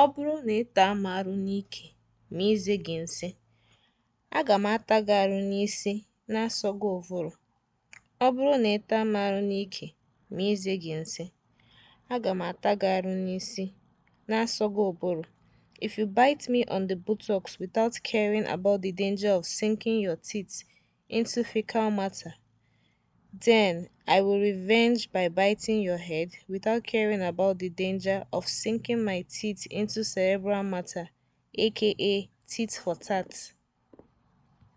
Ọ bụrụ na ị taa m arụ n'ike ma ize gị nsị, aga m ata gị arụ n'isi na-asọ ụvụrụ. Ọ bụrụ na m arụ n'ike ma ize gị aga m ata gị arụ n'isi na ụbụrụ. If you bite me on the buttocks without caring about the danger of sinking your teeth into fecal matter Then I will revenge by biting your head without caring about the danger of sinking my teeth into cerebral matter, aka tit for tat.